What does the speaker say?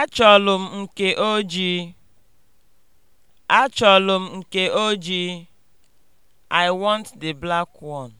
Achọlụ m nke ojii. Achọlụ m nke ojii. I want the black one.